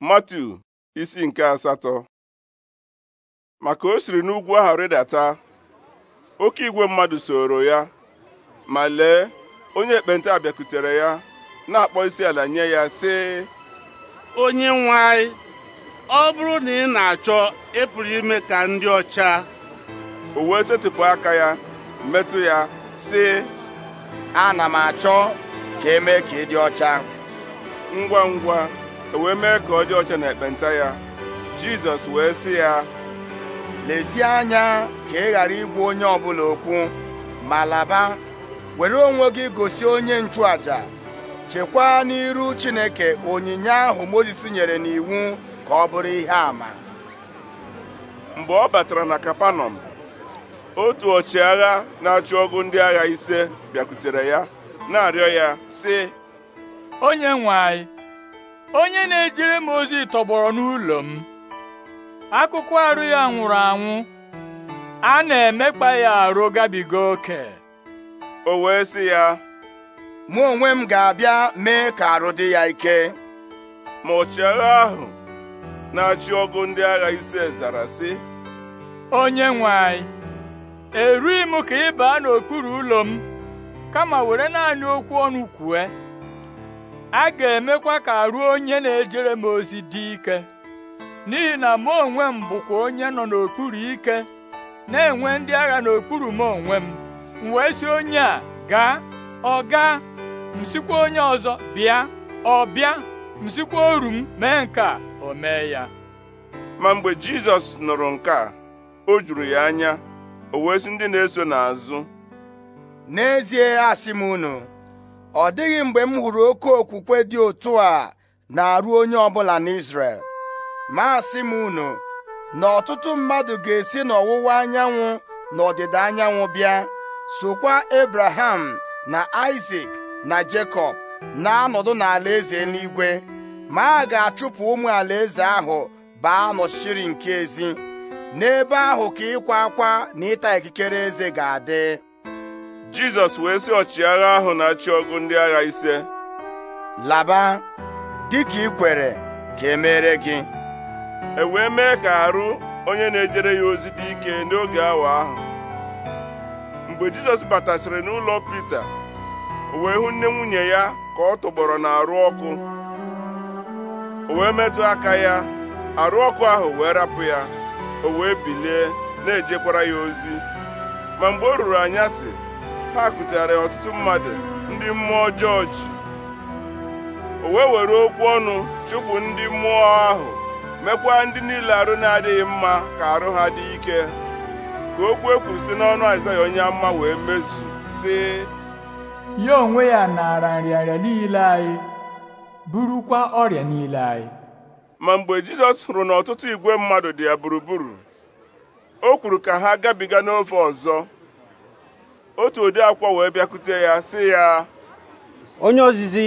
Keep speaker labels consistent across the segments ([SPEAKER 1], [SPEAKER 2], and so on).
[SPEAKER 1] Matu isi nke asatọ maka o siri n'ugwu ahụ rịdata oke igwe mmadụ soro ya ma lee onye ekpenta bịakutere ya na-akpọ isi ala nye ya sị onye nwe anyị ọ bụrụ na ị na-achọ ịpụrụ ime ka ndị ọcha
[SPEAKER 2] o wee setịpụ aka ya metụ ya sị ana m achọ ka emee ka ị dị ọcha ngwa ngwa E wee mee ka ọ dị ọcha na ekpenta ya jizọs wee sị ya lezie anya ka ị ghara igwu onye ọbụla okwu ma laba were onwe gị gosi onye nchụaja chekwaa n'iru chineke onyinye ahụ mozis nyere n'iwu ka ọ bụrụ ihe ama." mgbe ọ batara na
[SPEAKER 1] kapanọm otu ọchịagha na-achụ ọgụ ndị agha ise bịakwutere ya
[SPEAKER 3] na-arịọ ya sị onye nwe anyị onye na-ejere m ozi tọgbọrọ n'ụlọ m akụkụ arụ ya nwụrụ anwụ a na-emekpa ya arụ gabiga oke o wee sị ya
[SPEAKER 2] mụ onwe m ga-abịa mee ka arụ dị ya ike ma
[SPEAKER 1] ọchịagha ahụ na-achị ọgụ ndị agha ise zara sị
[SPEAKER 3] onye nwe anyị erughị m ka ị baa n'okpuru ụlọ m kama were naanị okwu ọnụ kwue a ga-emekwa ka arụ onye na-ejere m ozi dị ike n'ihi na mụ onwe m bụkwa onye nọ n'okpuru ike na-enwe ndị agha n'okpuru m onwe m m wee sị onye a gaa ọ gaa m sikwa onye ọzọ bịa ọ bịa m sikwa oru m mee nke a o mee ya ma mgbe Jizọs nụrụ nke a o juru
[SPEAKER 2] ya anya o wee ndị na-eso n'azụ n'ezie asị m unu ọ dịghị mgbe m hụrụ oke okwukwe dị otu a na-arụ onye ọbụla n'Israel. ma si m unu na ọtụtụ mmadụ ga-esi n'ọwụwa anyanwụ na ọdịda anyanwụ bịa sokwa Abraham na Isaac na Jekọb na-anọdụ n'ala eze n'igwe ma a ga-achụpụ ụmụ alaeze ahụ baa n'ọchịchịrị nke ezi n'ebe ahụ ka ịkwa akwa na ịta ikikere eze ga-adị jizọs wee sị ọchịagha
[SPEAKER 1] ahụ na-achị ọgụ ndị agha ise laba dịka ị kwere ka emere gị e wee mee ka arụ onye na-ejere ya ozi dị ike n'oge awa ahụ mgbe jizọs batasịrị n'ụlọ pita o wee hụ nne nwunye ya ka ọ tụgbọrọ n'arụ ọkụ o wee metụ aka ya arụ ọkụ ahụ wee rapụ ya o wee bilie na-ejekwara ya ozi ma mgbe o ruru anyasị ha kutere ọtụtụ mmadụ ndị mmụọ ọjọọ ji o wee were okwu ọnụ chụpụ ndị mmụọ ahụ mekwa ndị niile arụ na-adịghị mma ka arụ ha dị ike ka okwu e kwuru si n'ọnụ Aịzaya onye mma wee mezu si
[SPEAKER 3] ya onwe ya naara nrịanrịa niile anyị burukwa ọrịa niile anyị
[SPEAKER 1] ma mgbe Jizọs hụrụ na ọtụtụ igwe mmadụ dị ya gburugburu o kwuru ka ha gabiga n'ofe ọzọ otu ode akwụkwọ wee bịakute ya si ya
[SPEAKER 2] onye ozizi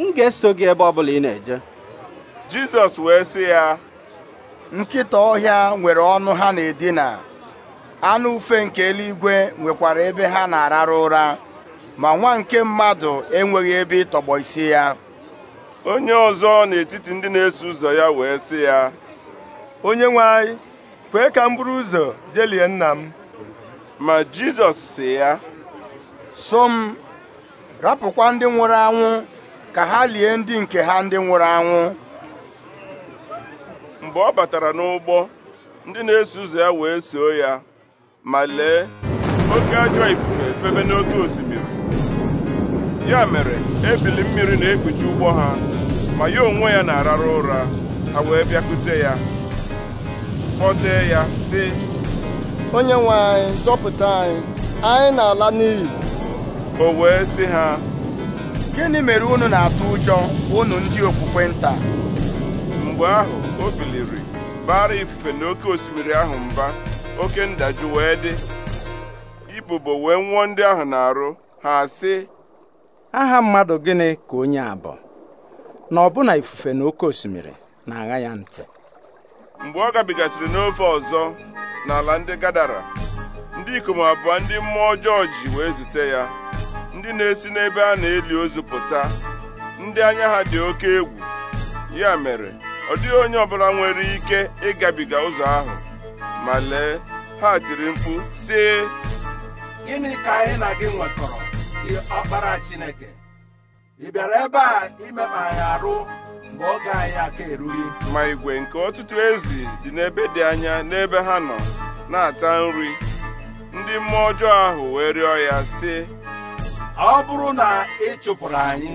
[SPEAKER 2] m ga-eso gị ebe ọbụla ị na-eje Jizọs wee sị ya nkịta ọhịa nwere ọnụ ha na-edina anụ ufe nke eluigwe nwekwara ebe ha na araru ụra ma nwa nke mmadụ enweghị ebe ịtọgbọ isi ya onye ọzọ n'etiti ndị na-eso ụzọ ya wee sị ya onye nwe anyị kwee ka m buru ụzọ jelie nna m
[SPEAKER 1] ma jizọs si ya
[SPEAKER 2] so m rapụkwa ndị nwụrụ anwụ ka ha lie ndị nke ha ndị nwụrụ anwụ mgbe ọ batara n'ụgbọ ndị na-eso ụzọ ya wee soo ya
[SPEAKER 1] ma lee oke ajọ ifufe efebe n'oke osimiri ya mere ebili mmiri na-ekpuchi ụgbọ ha ma ya onwe ya na-arara ụra ha wee bịakute ya kpọtee ya sị
[SPEAKER 2] onye nwe anyị zọpụta anyị anyị na-ala n'iyi o wee sị ha gịnị mere unu na-atụ ụjọ unu ndị okpukpe nta
[SPEAKER 1] mgbe ahụ o biliri bara ifufe na oke osimiri ahụ mba oke ndajụ wee dị ibubo wee nwụọ ndị ahụ na-arụ ha sị
[SPEAKER 3] aha mmadụ gịnị ka onye a bụ na ọbụna ifufe na oke osimiri na-agha ya ntị
[SPEAKER 1] mgbe ọ gabigasịrị n'ofe ọzọ n'ala ndị gadara ndị ikom abụọ ndị mmụọ ọjọọ wee zute ya ndị na-esi n'ebe a na-eli ozu pụta ndị anya ha dị oke egwu ya mere ọ dịghị onye ọbụla nwere ike ịgabiga ụzọ ahụ ma lee ha tiri mkpu sị gịnị ka anyị na gị nwekọrọ ọkpara Chineke ị bịara ebe a imekpa mgbe ọ ga anyị aka eruri ma igwe nke ọtụtụ ezi dị n'ebe dị anya n'ebe ha nọ na-ata nri ndị mmụọ ọjọọ ahụ wee rịọ ya sị ọ bụrụ na ị chụpụrụ anyị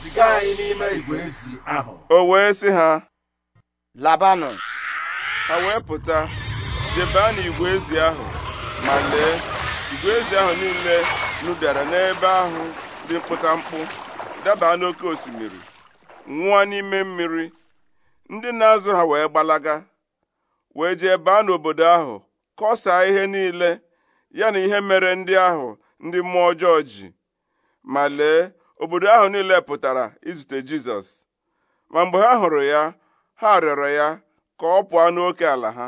[SPEAKER 1] ziga anyị n'ime igwe ezi ahụ o wee sị ha labanụ ha wee pụta jebaa n'igwe ezi ahụ ma lee igwe ezi ahụ niile nụbịara n'ebe ahụ dị mkpụta mkpụ daba n'oké osimiri Nwa n'ime mmiri ndị na-azụ ha wee gbalaga wee jee baa n'obodo ahụ kọsaa ihe niile ya na ihe mere ndị ahụ ndị mmụọ ọjọọ ji ma lee obodo ahụ niile pụtara izute Jizọs ma mgbe ha hụrụ ya
[SPEAKER 3] ha rịọrọ ya ka ọ pụọ n'oke ala ha